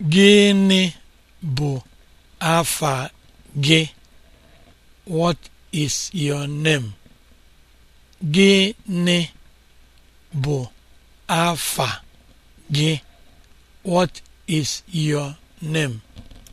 Gịnị bụ afa gị? What is your name? gị? What is your name?